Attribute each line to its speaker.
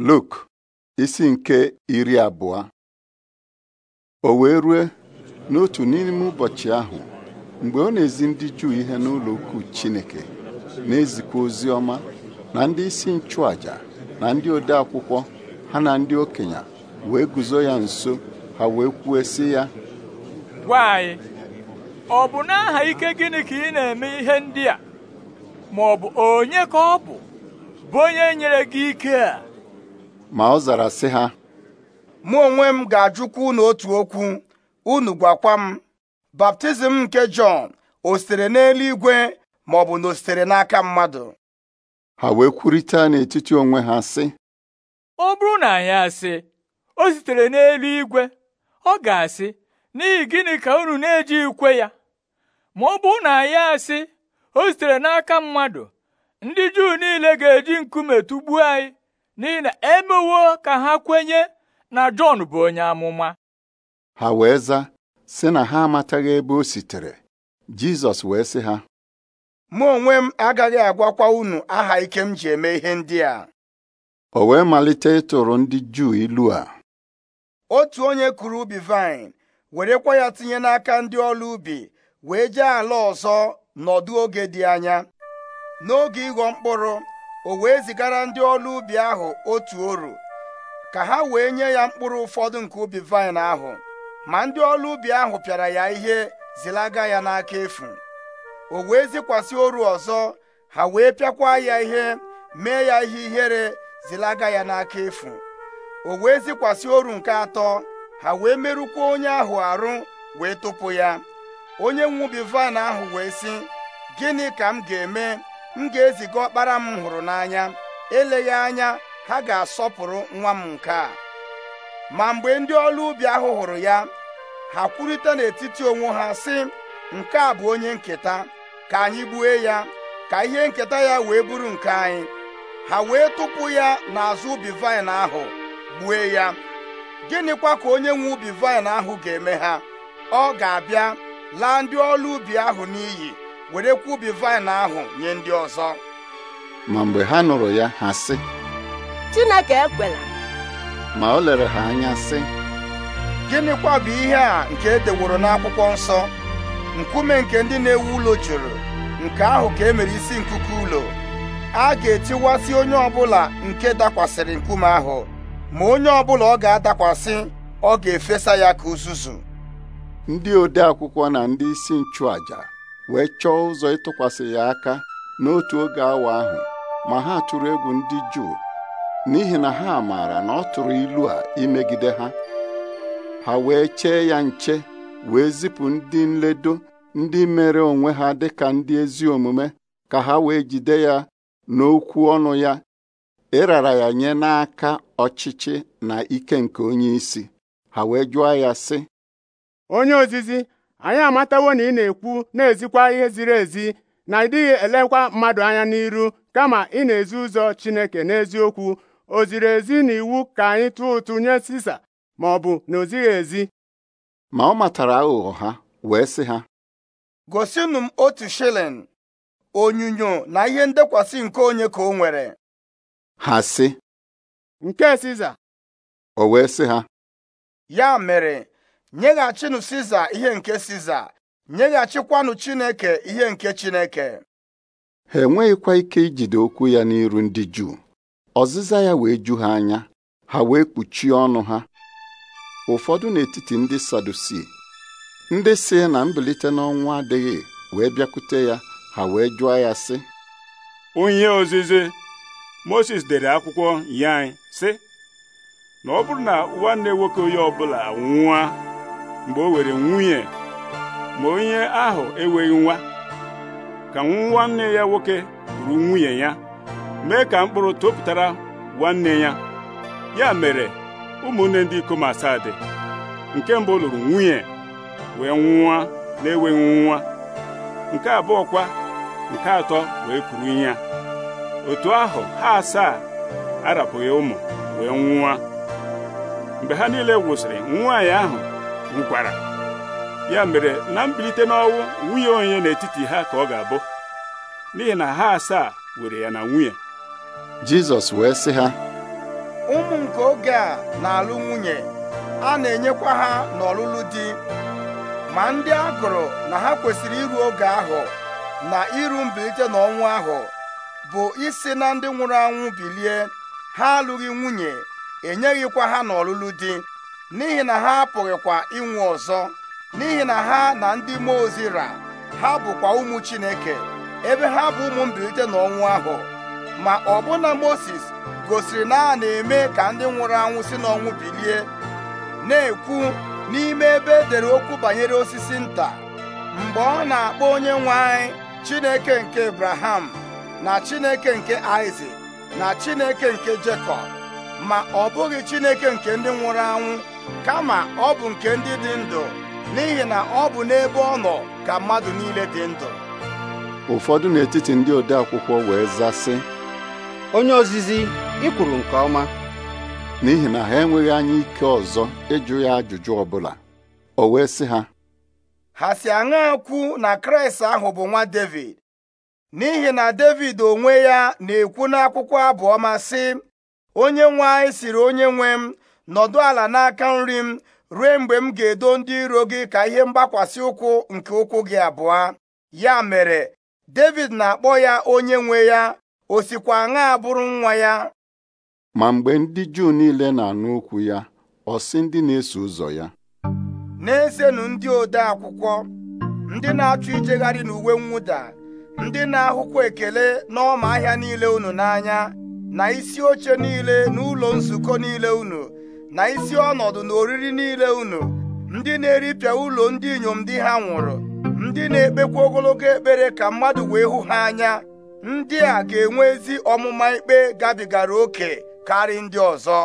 Speaker 1: Luk isi nke iri abụọ o wee rue n'otu n'ime ụbọchị ahụ mgbe ọ na-ezi ndị Juu ihe n'ụlọ ukwu Chineke na-ezikwa ozi ọma na ndị isi nchụàjà na ndị odeakwụkwọ ha na ndị okenye wee guzo ya nso ha wee kwuo si ya
Speaker 2: gwa anyị ọ bụ n'aha ike gịnị ka ị na-eme ihe ndị a ma ọ bụ onye ka ọ bụ bụ onye nyere gị ike a ma ọ zara sị ha mụ onwe m ga-ajụkwa unu otu okwu unu gwakwa m baptizim nke Jọn o sitere n'eluigwe ma ọ bụ na o sitere n'aka mmadụ
Speaker 1: ha wee kwurịta n'etiti onwe ha sị
Speaker 2: ọ bụrụ na anyị asị o sitere n'eluigwe ọ ga-asị n'ihi gịnị ka unu na-eji ikwe ya ma ọ bụrụ na anyị asị o sitere n'aka mmadụ ndị Juu niile ga-eji nkume tụgbuo anyị n'ihi na emewo ka ha kwenye na Jọn bụ onye amụma
Speaker 1: ha wee za, sị na ha amataghị ebe o sitere Jizọs wee sị ha
Speaker 2: mụ onwe m agaghị agwakwa unu aha ike m ji eme ihe ndị a
Speaker 1: o wee malite ịtụrụ ndị Juu ilu a
Speaker 2: otu onye kụrụ ubi vaịn werekwa ya tinye n'aka ndị ọrụ ubi wee jee ala ọzọ nọdụ oge dị anya n'oge ịghọ mkpụrụ o wee zigara ndị ọrụ ubi ahụ otu oru ka ha wee nye ya mkpụrụ ụfọdụ nke ubi vaịn ahụ ma ndị ọrụ ubi ahụ pịara ya ihe zilaga ya n'aka efu o wee zikwasị oru ọzọ ha wee pịakwa ya ihe mee ya ihe ihere zilaga ya n'aka efu o wee zikwasị oru nke atọ ha wee merụkwa onye ahụ arụ wee tụpụ ya onye nwe ubi vaịn ahụ wee sị gịnị ka m ga-eme m ga-eziga ọkpara m hụrụ n'anya eleghị anya ha ga-asọpụrụ nwa m nke a ma mgbe ndị ọrụ ubi ahụ hụrụ ya ha kwurịta n'etiti onwe ha sị nke a bụ onye nketa ka anyị gbue ya ka ihe nketa ya wee buru nke anyị ha wee tụpụ ya n'azụ ubi vaịn ahụ gbue ya gịnịkwa ka onye nwe ubi vaịn ahụ ga-eme ha ọ ga-abịa laa ndị ọrụ ubi ahụ n'iyi werekwa ubi vaịn ahụ nye ndị ọzọ
Speaker 1: ma mgbe ha nụrụ ya ha sị
Speaker 2: Chineke ekwela
Speaker 1: ma o lere ha anya sị
Speaker 2: gịnịkwa bụ ihe a nke e deworo n'akwụkwọ nsọ nkume nke ndị na-ewu ụlọ jụrụ nke ahụ ka e mere isi nkuku ụlọ a ga-etiwasị onye ọbụla nke dakwasịrị nkume ahụ ma onye ọbụla ọ ga-adakwasị ọ ga-efesa ya ka uzuzu
Speaker 1: ndị ode akwụkwọ na ndị isi nchụaja wee chọọ ụzọ ịtụkwasị ya aka n'otu oge awa ahụ ma ha tụrụ egwu ndị Juu n'ihi na ha maara na ọ tụrụ ilu a imegide ha ha wee chee ya nche wee zipụ ndị nledo ndị mere onwe ha dị ka ndị ezi omume ka ha wee jide ya n'okwu ọnụ ya ịrara e ya nye n'aka ọchịchị na ike nke onye isi ha wee jụọ ya sị
Speaker 2: onye ozizi anyị amatawo na ị na-ekwu na-ezikwa ihe ziri ezi na ị elekwa mmadụ anya n'iru kama ị na-ezi ụzọ Chineke n'eziokwu o ziri ezi na iwu ka anyị tụọ ụtụ nye Sisa ma ọ bụ na o zighị ezi
Speaker 1: ma ọ matara aghụghọ ha wee sị ha
Speaker 2: gosinụ m otu shilling onyinyo na ihe ndekwasị nke onye ka o nwere ha si. nke Siza o wee sị ha ya mere nyeghachinụ siza ihe nke siza nyeghachikwanụ chineke ihe nke chineke
Speaker 1: ha enweghịkwa ike ijide okwu ya n'iru ndị juu ọzịza ya wee ju ha anya ha wee kpuchie ọnụ ha ụfọdụ n'etiti ndị sadusi ndị si na mbilite n'ọnwụ adịghị wee bịakwute ya ha wee jụọ ya sị onye ozizi Moses dere akwụkwọ nye sị na ọ bụrụ na nwanne nwoke onye ọbụla nwụa mgbe o were nwunye ma onye ahụ enweghị nwa ka nwanne ya nwoke kwuru nwunye ya mee ka mkpụrụ topụtara nwanne ya ya mere ụmụnne ndị ikom asaa dị nke mbụ lụrụ nwunye wee nwa na-enweghị nwa nke abụọ kwa nke atọ wee kwuru ya otu ahụ ha asaa arapụghị ụmụ wee nwa mgbe ha niile gwụsịrị nwaanyị ahụ Nkwara ya mere na mbilite n'ọnwụ nwunye onye n'etiti ha ka ọ ga-abụ n'ihi na ha asaa were ya na nwunye Jizọs wee sị ha
Speaker 2: ụmụ nke oge a na-alụ nwunye a na-enyekwa ha n'ọlụlụ di ma ndị a gụrụ na ha kwesịrị iru oge ahụ na iru mbilite n'ọnwụ ahụ bụ isi na ndị nwụrụ anwụ bilie ha alụghị nwunye enyeghịkwa ha n'ọlụlụ di n'ihi na ha apụghịkwa inwe ọzọ n'ihi na ha na ndị mmụọ ozi ra ha bụkwa ụmụ Chineke ebe ha bụ ụmụ mbilite n'ọnwụ ahụ ma ọbụna Moses gosiri na a na-eme ka ndị nwụrụ anwụ si n'ọnwụ bilie na-ekwu n'ime ebe edere okwu banyere osisi nta mgbe ọ na-akpọ onye nwe anyị Chineke nke Abraham na Chineke nke Isaac na Chineke nke Jekọb ma ọ bụghị Chineke nke ndị nwụrụ anwụ kama ọ bụ nke ndị dị ndụ n'ihi na ọ bụ n'ebe ọ nọ ka mmadụ niile dị ndụ
Speaker 1: ụfọdụ n'etiti ndị ode akwụkwọ wee zasị
Speaker 2: onye ozizi ị nke ọma
Speaker 1: n'ihi na ha enweghị anya ike ọzọ ịjụ ya ajụjụ bụla. o wee sị ha
Speaker 2: ha si aṅa kwu na Kraịst ahụ bụ nwa Devid n'ihi na Devid onwe ya na-ekwu n'akwụkwọ abụọma sị onye nwe anyị siri onye nwe m nọdụ ala n'aka nri m ruo mgbe m ga-edo ndị iro gị ka ihe mgbakwasị ụkwụ nke ụkwụ gị abụọ ya mere David na-akpọ ya onye nwe ya o sikwa aṅa abụrụ nwa ya
Speaker 1: ma mgbe ndị Juu niile na-anụ okwu ya ọ sị ndị na-eso ụzọ ya
Speaker 2: na-esenu ndị ode akwụkwọ ndị na-achọ ijegharị n'uwe mwụda ndị na-ahụkwa ekele n'ọma ahịa niile unu n'anya na isi oche niile n'ụlọ nzukọ niile unu na isi ọnọdụ na oriri niile unu ndị na-eripịa ụlọ ndị inyom di ha nwụrụ ndị na-ekpekwa ogologo ekpere ka mmadụ wee hụ ha anya ndị a ga-enwe ezi ọmụma ikpe gabigara oke karị ndị ọzọ